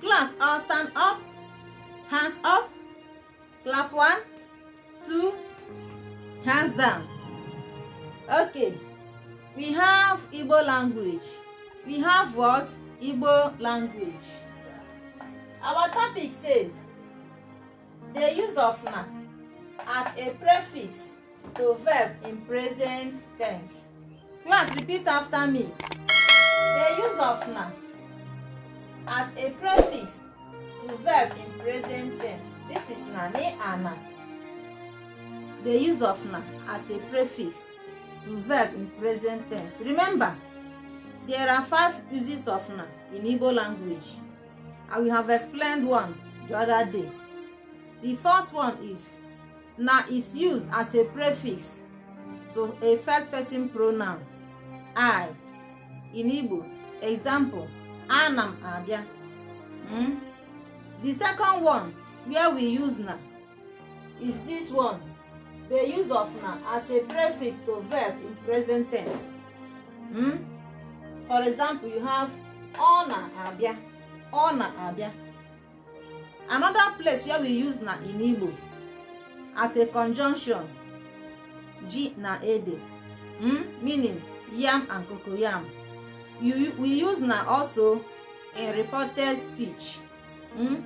class all stand up hands up clap one two hands down okay we have igbo language we have what igbo language our topic says the use of na as a prefix to verb in present tense class repeat after me the use of na as a prefix to verb in present tense. This is na, ne, ana. The use of na as a prefix to verb in present tense. Remember, there are five uses of na in Igbo language. I will have explained one the other day. The first one is na is used as a prefix to a first person pronoun. I in Igbo. Example, ana m abịa the second one where we use na is this one the use of na as a prefix to verb in present tense hmm? for example you have ọ abia, abịa abia. another place where we use na in igbo as a conjunction ji na ede hmm? meaning yam and cocoyam you, we use na also in reported speech mm?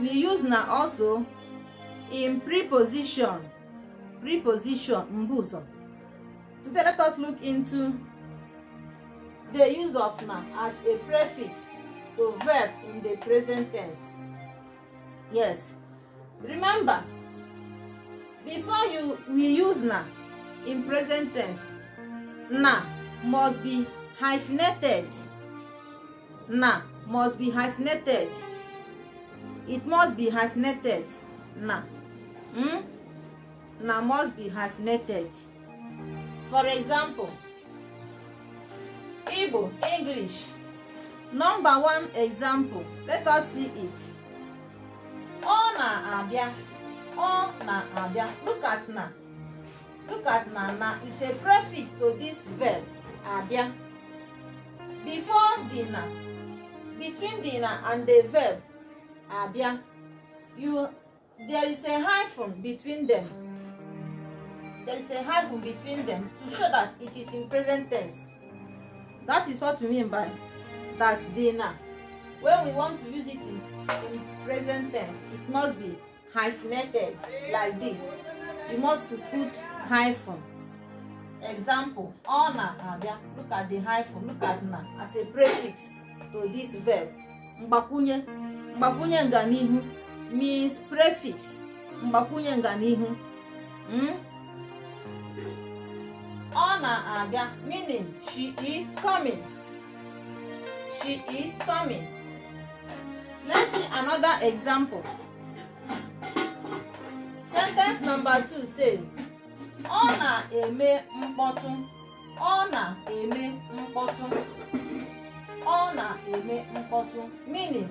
we use na also in preposition preposition mbuzo today let us look into the use of na as a prefix to verb in the present tense yes remember before you we use na in present tense na must be hyphenated na must be hyphenated it must be hyphenated na hmm? na must be hyphenated for example igbo english number one example let us see it ọ na-abịa ọ na-abịa look at na look at na na is a prefix to this verb Abia before dinner between dinner and the verb abia you there is a hyphen between them there is a hyphen between them to show that it is in present tense that is what we mean by that dinner when we want to use it in, in present tense it must be hyphenated like this you must to put hyphen Example, na abịa. Look at the hyphen, look at na as a prefix to this verb. Mgbakwunye mgbakwunye nganihu means prefix. Mgbakwunye nganihu. Hmm? na abịa meaning she is coming. She is coming. Let's see another example. Sentence number two says ọ na-eme mkpọtụ ọ na-eme mkpọtụ ọ na-eme mkpọtụ meaning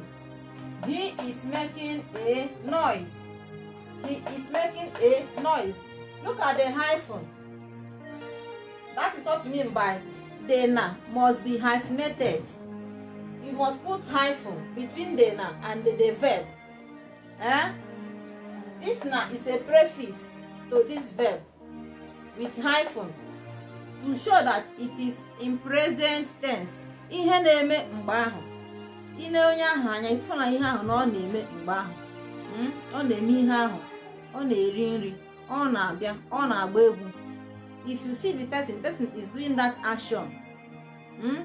he is making a noise he is making a noise look at the hyphen that is what you mean by "dena" must be hyphenated you must put hyphen between "dena" and the, the verb eh? this na is a preface to this verb with hyphen to show that it is in present tense ihe na-eme mgbe ahụ ile onye ahụ anya ifụna ihe ahụ na ọ na-eme mgbe ahụ hmm? ọ na-eme ihe ahụ ọ na-eri nri ọ na-abịa ọ na-agba egwu if you see the person the person is doing that action hmm?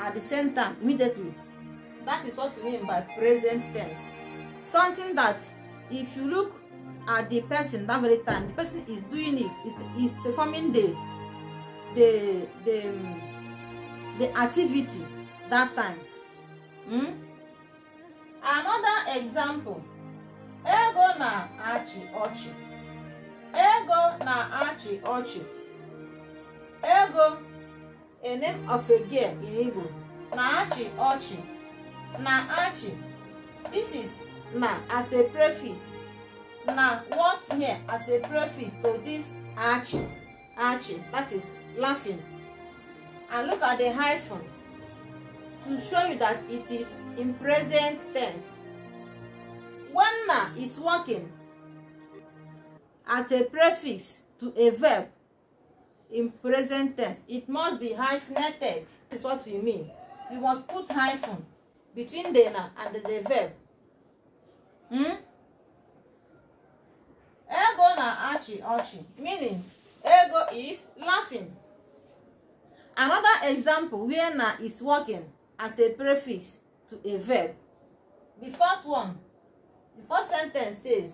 at the same time immediately that is what we mean by present tense something that if you look at the person that very time the person is doing it is is performing the the the um, the activity that time hmm? another example ego na achi ochi. ego na achi ochi. ego a name of a girl in igbo na achi ochi. na achi. this is na as a preface Now, what's here as a preface to this arching? Arching, that is laughing. And look at the hyphen to show you that it is in present tense. When na is working as a prefix to a verb in present tense, it must be hyphenated. This is what we mean. You must put hyphen between the na and the, the verb. Hmm? ọchị ọchị meaning ego is laughing another example where na is working as a prefix to a verb the first one the first sentence says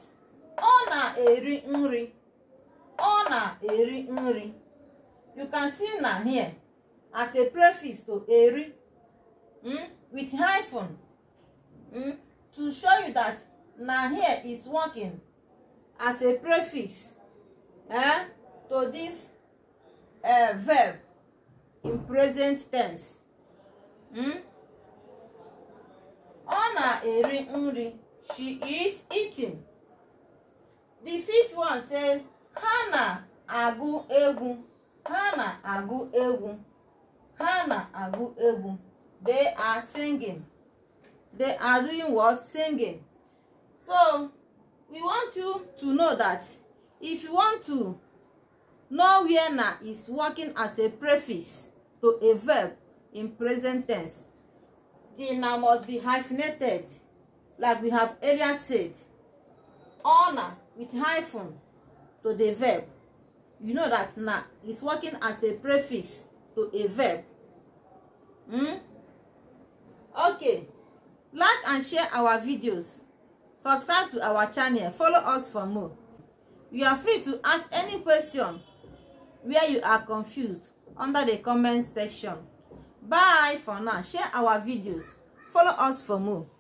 ọ na-eri nri ọ na-eri nri you can see na here as a prefix to eri mm, with hyphen mm, to show you that na here is working as a prefix eh, to this uh, verb in present tense hmm? ọ na-eri nri she is eating the fifth one says ha na-agụ egwu ha na-agụ egwu ha they are singing they are doing what singing so we want you to know that if you want to know where na is working as a prefix to a verb in present tense the na must be hyphenated like we have earlier said honor with hyphen to the verb you know that na is working as a prefix to a verb hmm? okay like and share our videos subscribe to our channel follow us for more You are free to ask any question where you are confused under the comment section. Bye for now. Share our videos. Follow us for more.